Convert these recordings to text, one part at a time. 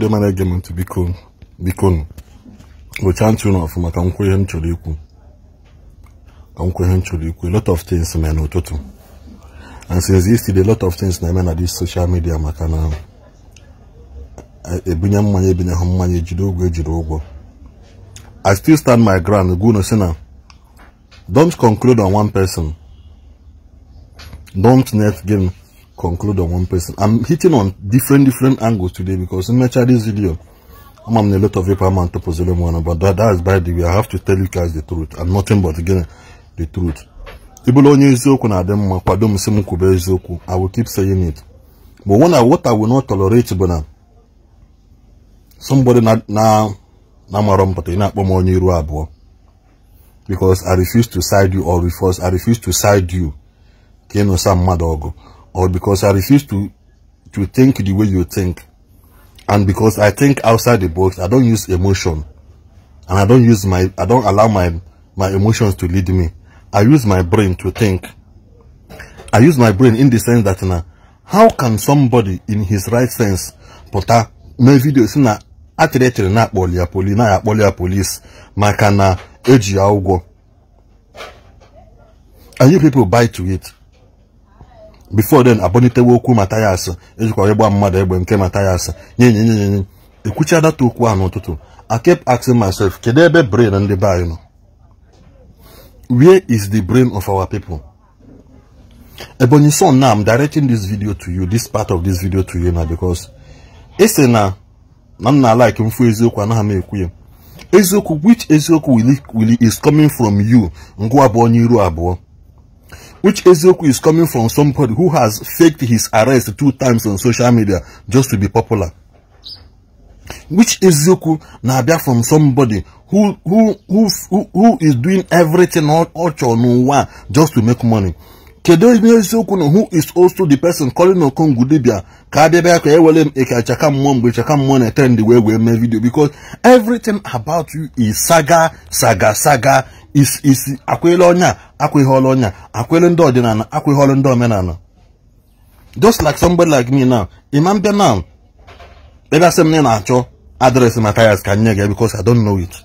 ndị biko ntị ụlọ ihe m chọrọ ikwu ka ihe m chọrọ ikwu lot of things n'ụtụtụ and since yesterday lot of things na-eme na this social media maka na mmanya mmanya ejiri ụgwọ ejiri ụgwọ I still stand my ground gwunu si na don't conclude on one person don't net game conclude on one person. I'm hitting on different different angles today because in my this video, I'm on a lot of paper man to puzzle one, but that, that is by the way. I have to tell you guys the truth and nothing but again the truth. i will keep saying it but when I, what i will not tolerate bụ na somebody na na na ị na-akpọ m onye because i refuse to side you or refuse i refuse to side you ka some mad dog or because I refuse to, to think the way you think. And because I think outside the box, I don't use emotion. And I don't use my, I don't allow my, my emotions to lead me. I use my brain to think. I use my brain in the sense that now, how can somebody in his right sense pụta my video is na atịrịtịrị na-akpọli ya poli na akpọli police polis maka na eji ya and you people buy to it before den abọnitewe okwu matayas ejikwa ịgba mmadụ egbe nke matayas nye nye nye nye nye ekwucha data okwu ahụ n'ụtụtụ I kept asking myself kedu ebe brain ndị be anyị nọ where is the brain of our people Ebonyi son na am directing this video to you this part of this video to you na because ese na na m na like mfu eziokwu anaghị m ekwu ya eziokwu which eziokwu will is coming from you ngwa abụọ n'iru abụọ which Ezeoku is coming from somebody who has faked his arrest two times on social media just to be popular. Which Ezeoku na-abịa from somebody who who who who, who is doing everything all all chọrọ n'ụwa just to make money. kedu ihe isiokwu na who is also the person calling Okongwu dibia ka adịbịa ka ewere m eke achaka mmụọ mgbe chaka mmụọ na-etend wee wee mee video because everything about you is saga saga saga is is akwele ọnya akwụghị ọrụ ọnya akwele ndị ọdịnala akwụghị ọrụ ndị omenala just like somebody like me now imam bịa now ebe asị m na ị na-achọ adreesị Matthias ka nye gị because I don't know it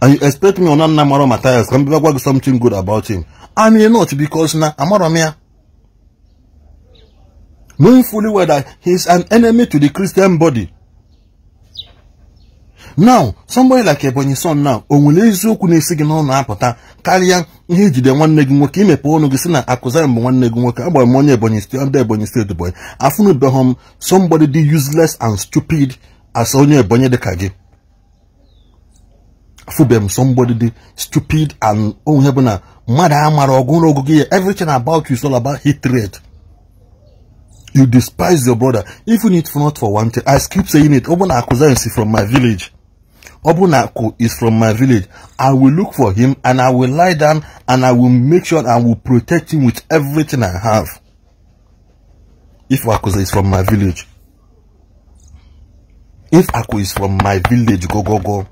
and you expect me ọna nna mara Matthias ka m bịa gwa gị something good about him I may not because na Amaramia. Knowing fully well that he is an enemy to the Christian body. Now, somebody like Ebonyi son now, onwere nwere eziokwu na-esi gị n'ọnụ apụta karịa ihe ijide nwanne gị nwoke imepe ọnụ gị si na akụziri mbụ nwanne gị nwoke agbara onye Ebonyi steeti ndị Ebonyi steeti bụ afụnụbeghị m somebody dị useless and stupid as onye Ebonyi dịka gị fubem somebody the stupid and oh, bụ na mmadụ amara everything about you is all about hatred you despise your brother even if not for one thing i keep saying it ọbụna akụza is from my village ọbụna akụ is from my village i will look for him and i will lie down and i will make sure i will protect him with everything i have if akụza is from my village if akụ is from my village go go go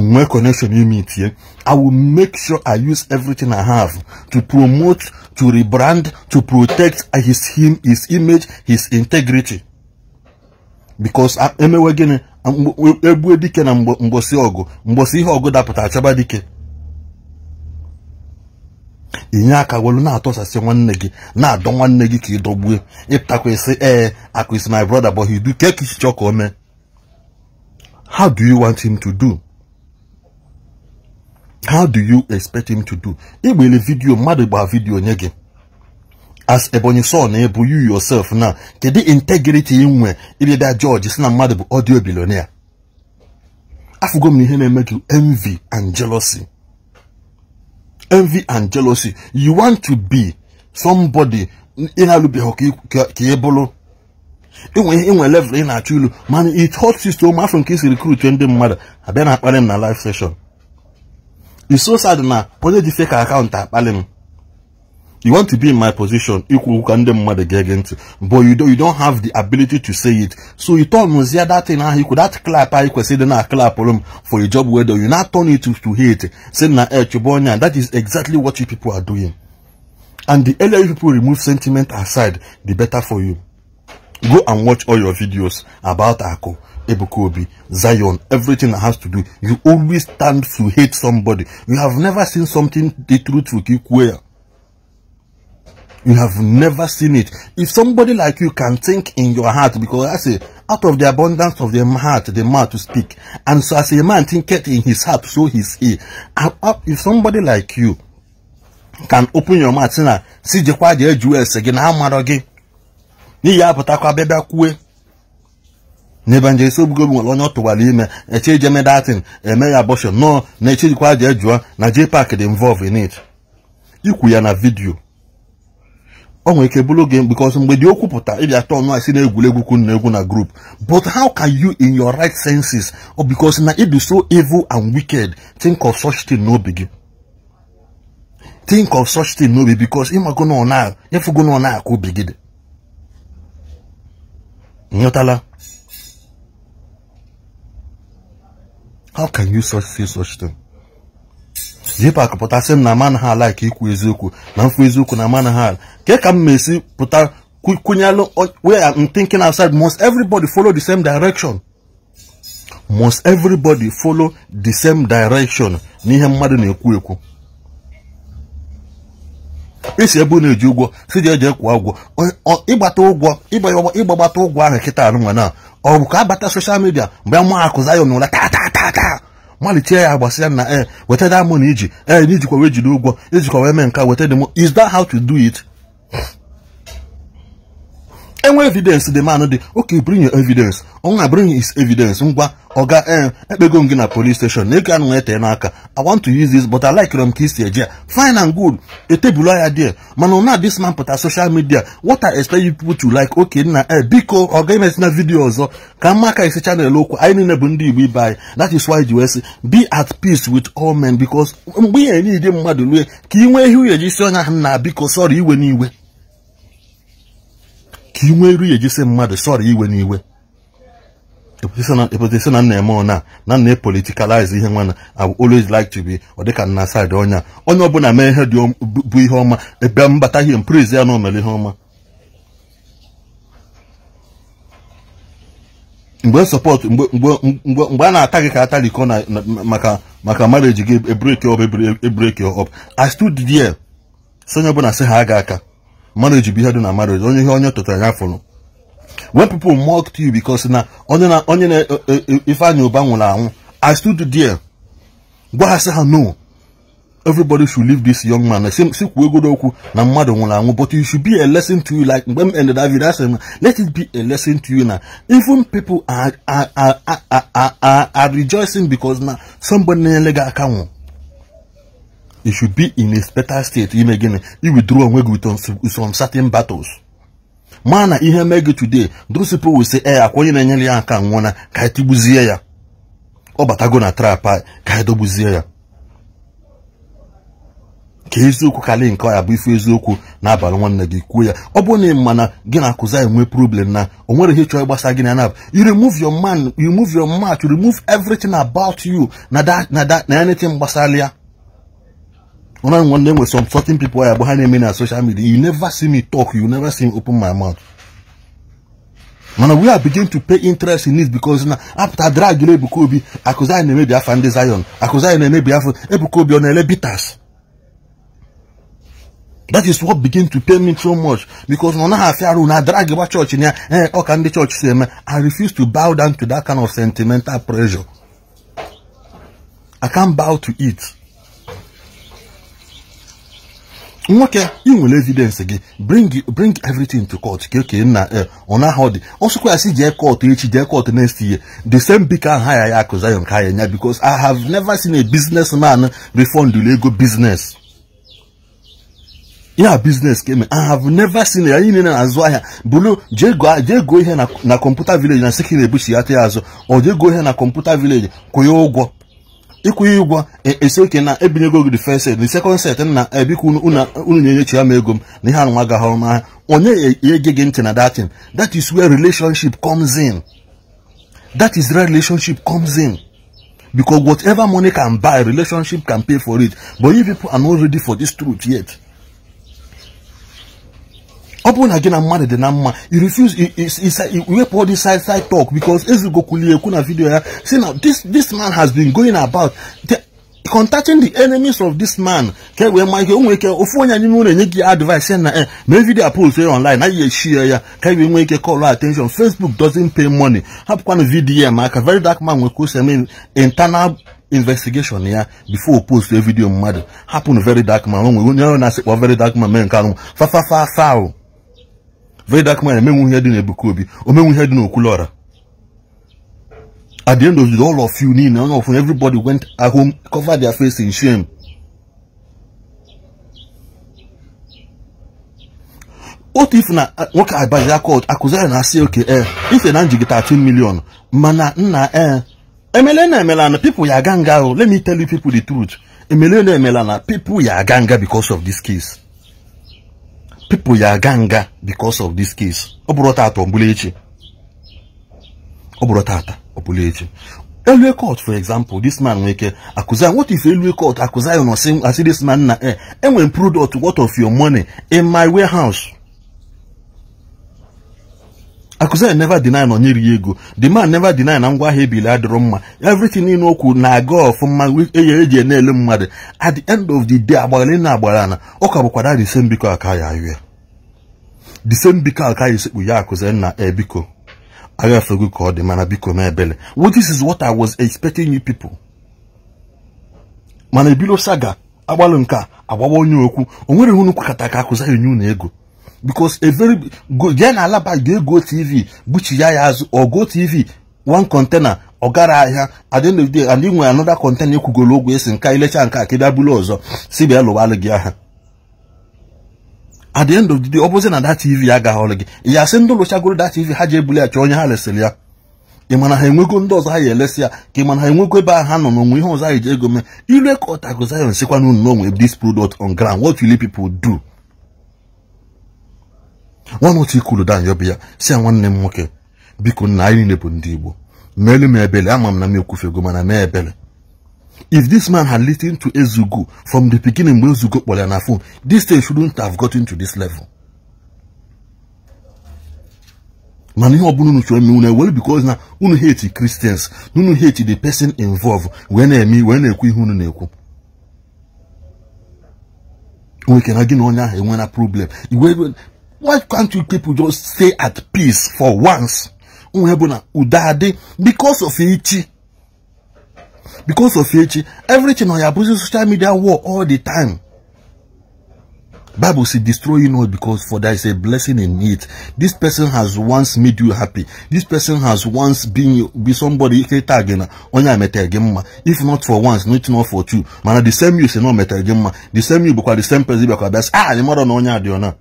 nwee connection ime itie i will make sure i use everything i have to promote to rebrand to protect his him his image his integrity because ah, emewe gịnị ah, egbue dike na mgbosi ọgụ mgbosi ihe ọgụ dapụtara achaba dike inye aka welu na-atọsasị nwanne gị na-adọ nwanne gị ka ịdọgbue ịpụtakwasị ee akwụsị my brother but he do ka o mee how do you want him to do how do you expect him to do igbele vidiyo mmadụ gbaa vidiyo nye gi as ebonyi saw na-ebu you yourself na kedu integrity ibe ịbịabịa George si na mmadụ audio billionaire afụgo m na ihe na-eme gị envy and jealousy envy and jealousy you want to be somebody ị na-alụbeghị ka ị bụrụ inwe level ị na-achọ ilu mana it hot system afọ nke isi recruit ndị mmadụ abịa na akparị m na live session It's so sad na onye ji fake account akpali m you want to be in my position ikwu okwu ka ndị mmadụ ga ntị but you don't, you don't have the ability to say it so you turn muzie that thing ahụ ikwu that clap ahụ kwesịrị dị na clapụrụ m for a job wedo you not turn it to, to hate say na echụbụ eh, onye that is exactly what you people are doing and the earlier you people remove sentiment aside the better for you go and watch all your videos about Ako Ebukobi, Zion, everything that has to do. You always stand to hate somebody. You have never seen something the truth will keep where. You have never seen it. If somebody like you can think in your heart, because I say, out of the abundance of the heart, the mouth to speak. And so as a man thinketh in his heart, so is he. Uh, if somebody like you can open your mouth, see, the see, see, see, see, see, see, see, see, see, see, see, nje Ebuka Obi nwere onye ọ tụwara ime eche ije medatin eme ya abọshọn nọọ na echejikwa aja ejụọ na pak dị involve in it ikwu ya na vidiyo ọ nwere ike bụrụ oge because mgbe dị okwu pụta ịbịa tọọ nụ asị na egwuregwu kwun na egwu na group but how can you in your right senses or because na ịdị so evil and wicked think of such thing n'obi gị think of such thing n'obi because ịmago na ọ na-efugo na ọ na-akụ obi gị dị nyụtala how can you such say such thing JPAC pụtasị m na ma anaghị ala ka ikwu eziokwu na mfu eziokwu na ma anaghị ala ka m esi pụta kwunyelụ where I'm thinking outside must everybody follow the same direction must everybody follow the same direction n'ihe mmadụ na-ekwu ekwu isi ebe na-eji ụgwọ si ji eji ekwu ụgwọ ịgbata ụgwọ ịgbagbata ụgwọ ahụ kịta anụnwa na ọ bụ ka bata soshal midia mgbe a ma akụ zayon ụra tatatata malite ya gbasịa na e weta na iji e eh, na ijikwa wee jide ụgwọ ijikwa wee mee nka weta demo is that how to do it enwe evidence the man dị oke bring your evidence ọnwa bring his evidence ngwa ọga eh, ekpego m gị na police station na ego anụnwa etee n'aka i want to use this but i like rom ka isi eje fine and good etebulu ya there mana na this man pụta social media what i expect you people to like okay nna ee eh, biko ọga imesina na vidio ọzọ ka mma aka isi chanel okwu anyị niile bụ ndị igbo ibe anyị that is why ji wee sị be at peace with all men because mgbe ihe niile mmadụ lue ka ị nwee ihe uye ji si onye ahụ na biko sorry iwe n'iwe ka i nwee iru ya ejisi mmadụ sọrọ iwe n'iwe epụtasi na nna eme ọ na na nna epolitikalize ihe nwana I always like to be ọ dịka nna side ọnya onye ọbụla mee ihe bụ ihe ọma ebe mbata ihe mpriz ya na omere ihe ọma mgbe sọpọt mgbe a na-ata gị ka ata na maka maka marriage gị ebreki ọp ebreki ọp I stood there so onye ọbụla sị ha aga aka marriage be ihe na marriage onye ihe onye tụtara ya fụrụ when people mocked you because na onye na onye na e, e, e, Ifeanyi Uba nwụrụ anwụ I stood there gwa ha sị ha no everybody should leave this young man si kwuo egodo okwu na mmadụ nwụrụ anwụ but it should be a lesson to you like mgbe m ended that video asị let it be a lesson to you na even people are are are are are rejoicing because na somebody na-enyere gị aka nwụrụ you should be in a better state ime gịnị iwithdraw onwe gị with some certain battles mana na ihe mee gị today those people will say ee eh, akwa onye na-enyere ya nka nwụna ka anyị ya ọ batago na trap ka anyị dogbuzie ya ka eziokwu karị nke ọya bụ ife eziokwu n'abalị nwanne gị kwuo ya ọ bụrụ na ị ma na gị na-akụzi anyị nwee problem na o nwere ihe chọrọ ịgbasa gị na nab you remove your man you remove your match you remove everything about you na na na anything gbasara ya When I'm wondering with some certain people are behind me on social media, you never see me talk, you never see me open my mouth. Now we are beginning to pay interest in this because now after drag you know Ebukobi, Akuza and maybe Afande Zion, Akuza and maybe Ebukobi on Elebitas. That is what begin to pay me so much because no na afiaru na drag about church in here, eh, can the church say, I refuse to bow down to that kind of sentimental pressure. I can't bow to it. nwoke ị nwere evidence gị bring bring everything to court ka okenye e nna eh, ọnaghọ dị ọsụkwa ya si jee court echi jee court next year the same bik aha ya ya akụza ya nke ha ya nya because I have never seen a businessman refund ego business ya business ka eme I have never seen ya anyị niile na-azụ ahịa bụrụ jee goo ihe na kọmputa village na sekiri ebuchi ya ta ya azụ ọ jee goo ihe na kọmputa village kwụnye ụgwọ ịkwụghị ụgwọ e, esi oke na ebinyego gị first set na second set na ebikwa unu na-enyechi ya m ego m na ihe anụnwa gaghị ọrụ onye e, e, ege gị ntị na datin that is where relationship comes in that is where relationship comes in because whatever money can buy relationship can pay for it but you people are not ready for this truth yet ọ bụrụ na gị na mmadụ dị na mma you refuse iwepụ all this side side talk because ezugokwuli ekwu na video ya si na this man has been going about contacting the enemies of this man ka e wee ma ihe o nwere ike ofu onye anyị nwere enye gị advice na e mee vidio post ya online anyị eshie ya ka e wee nwee ike call attention facebook doesn't pay money hapụkwanụ vidio ya maka very dark man nwere kwụsị internal investigation ya before post video mmadụ hapụnụ very dark man o nwere onye ahụ na-asịkpọ very dark man mee nke anụ fafafafa ahụ Vedak man emenwu ihe dị n'Ebuka Obi omenwu ihe dị at the end of the all of you niile onye everybody went at home cover their face in shame otu if na nwoke abaji akọt akụziri na asị oke eh, if ife na njigide 13 million mana nna ee eh, emele na emela na people ya aga nga let me tell you people the truth emele na emela na people ya aga nga because of this case people ya aga nga because of this case ọ bụrụ tata ọbụla echi ọ bụrụ tata ọbụla echi elue court for example this man nwere ike akụzi what if elue court akụzi ya nọ asị this man na eh, enwere product what of your money in my warehouse Akụzina neva deny na onye ri ego the man never deny na ngwa ahịa ebili adịrọ mma everything niile okwu na-aga mma eye eji na-ele mmadụ at the end of the day agbara na agbara na ụka bụkwara the same biko aka ya ahụ the same biko aka ya esekpu ya Akụzina ebiko aghafego ka ọ dị mana biko m ebele well this is what I was expecting you people mana ebilo saga agbalụ nke a agbawa onye okwu o nwere hụnụ kwakọta ka Akụzina nye unu ego because a very good ya na alaba ga-ego tv ya azụ ogo tv one container ọ gara ahịa adịnụdị and container esi nka ilecha nke ka ị ọzọ si bịa gị at the end of the day ọ na da tv agaghọrọ gị ya sị ndị lụchagoro da tv ha ji ebuli ya chọọ onye ha resịrị ya ị ha enwego ndị ọzọ ya elesi ya ka ị ha enwego ebe ahụ ha nọ n'onwe ihe ọzọ anyị ji ego mee ire ka ọtago zion sikwa this product on ground what will people do notu otu ikulu danyọ bụ ya si ya nwanne m nwoke biko nna anyị niile bụ ndị Igbo meelu m ebele ama m na m ego mana mee ebele if this man had listened to Ezugo from the beginning mgbe Ezugo kpọrọ ya na phone this thing shouldn't have gotten to this level mana ihe ọbụla unu chọrọ eme unu ewere na unu hate Christians na unu hate the person involved wee na-eme wee na-ekwu ihe unu na-ekwu nweke na gị na onye ahụ enwe problem why can't you people just stay at peace for once nhebuna udade because of echi because of echi everything on your busy social media war all the time bible says destroy you not because for there is a blessing in it this person has once made you happy this person has once been be somebody iketa again onye ameta again ma if not for once not not for two Man, the same you say no meta again ma the same you because the same person because bịa ah the mother na onye adị ọ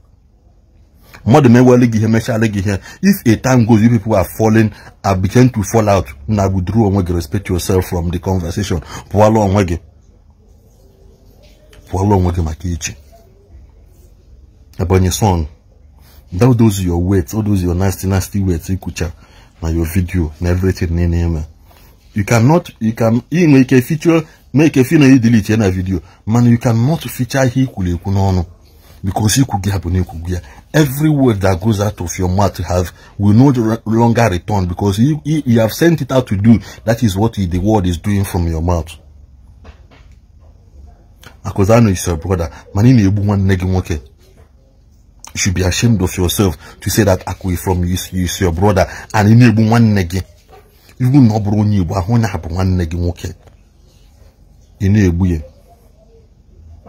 mmadụ mewele gị ihe mechala gị if a time goes you people are falling and begin to fall out na withdraw onwe gị respect yourself from the conversation pụọla onwe gị pụọla onwe gị maka iche onye son that those your words all those your nasty nasty weight ikwucha na your video na everything niile eme you cannot you can ị nwere ike feature make ike fi na ị delete na video man you cannot feature ihe ikwuru ekwu because ikwu gị ha bụ na ikwu gị ya every word that goes out of your mouth have will no longer return because you, you, you have sent it out to do that is what the word is doing from your mouth because I know it's your brother man you should be ashamed of yourself to say that akwe from you is your brother and in ebu nwanne gị ibu na ọ bụrụ onye igbo na abụ nwanne gị nwoke ị ye.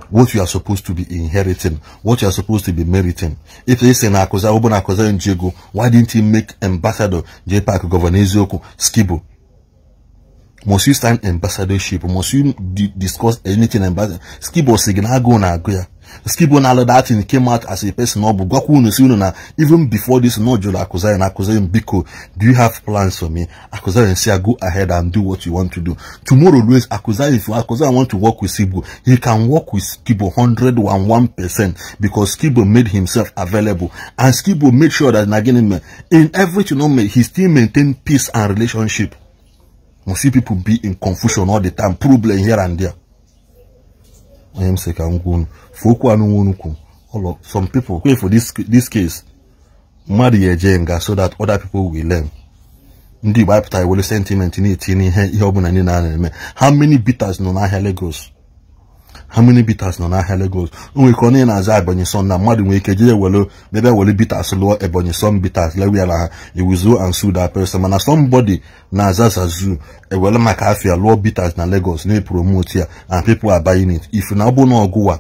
what you are supposed to be inheriting, what you are supposed to be meriting. If they say Nakoza Obo Nakoza Njego, why didn't he make ambassador J Park Governor Ezioku Skibo? Must you stand ambassadorship? Must you discuss anything ambassador? Skibo na Nagoya. Skibo Nalo that thing came out as a person or Bugwaku Nusununa. Even before this, no Akuzai and Akuzai Biko, do you have plans for me? Akuzai and say, go ahead and do what you want to do. Tomorrow, Louis Akuzai, if Akuzai want to work with Skibo, he can work with Skibo 101% because Skibo made himself available. And Skibo made sure that Naginime, in everything, he still maintained peace and relationship. We see people be in confusion all the time, problem here and there. onye m sị ka m gwa unu okwu anụ nwa unu kwu ụlọ some people kwe for this case mmadụ ya eje nga so that other people will learn ndị Igbo apụta iwere sentiment na-etinye ihe ihe ọbụla niile a na-eme how many bitters nọ n'ahịa Lagos how many bitters nọ n'ahịa Lagos o nwere ike onye na-aza Ebonyi na mmadụ nwere ike jee were bịa bịa bitters lụọ Ebonyi son bitters lewe na ha ewuzuo and sue that person mana somebody na-aza Zazu e ewere maka afia lụọ bitters na Lagos na-epromote ya and people are buying it if na ọ bụ na ọgụwa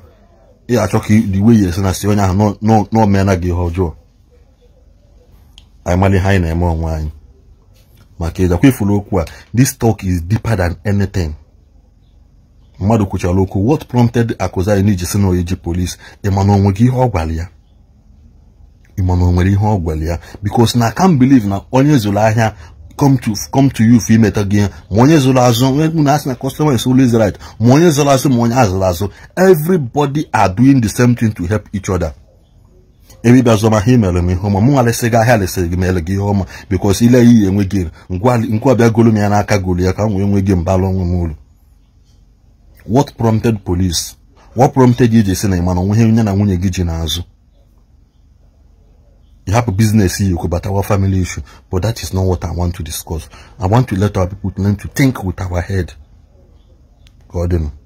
ị achọ ka the way esi na si onye ahụ n'omeela gị ihe ọjọọ anyị mara ihe anyị na-eme onwe anyị maka ịjakwa ifuru okwu a this talk is deeper than anything mmadụ kwuchara okwu what prompted Akuzzayi iji si na oyi ji polisi ịma na ihe ọ gwara ya ịma na o nwere ihe ọ gwara ya because na I can't believe na onye zụrụ ahịa come to you for imeta gị ma onye zụrụ azụ na asị na customer is always right ma onye zụrụ azụ ma onye azụrụ azụ everybody are doing the same thing to help each other ebibia zụma ha imere m ihe ọma mụ nwarịsị gị ahịa lesịrị gị mere gị ihe ọma because ile ya iyi enwe gị ngwa bịa golu m ya n'aka golu ya ka m wee nwee gị mbara onwe m uru what prompted police what prompted you to say na ị mana onwe nye na to gị ji n'azụ you have a business you could but our family issue but that is not what i want to discuss i want to let our people learn to think with our head god know.